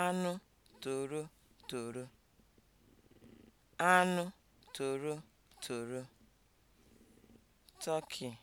anụ torotoro, anụ toro, turkey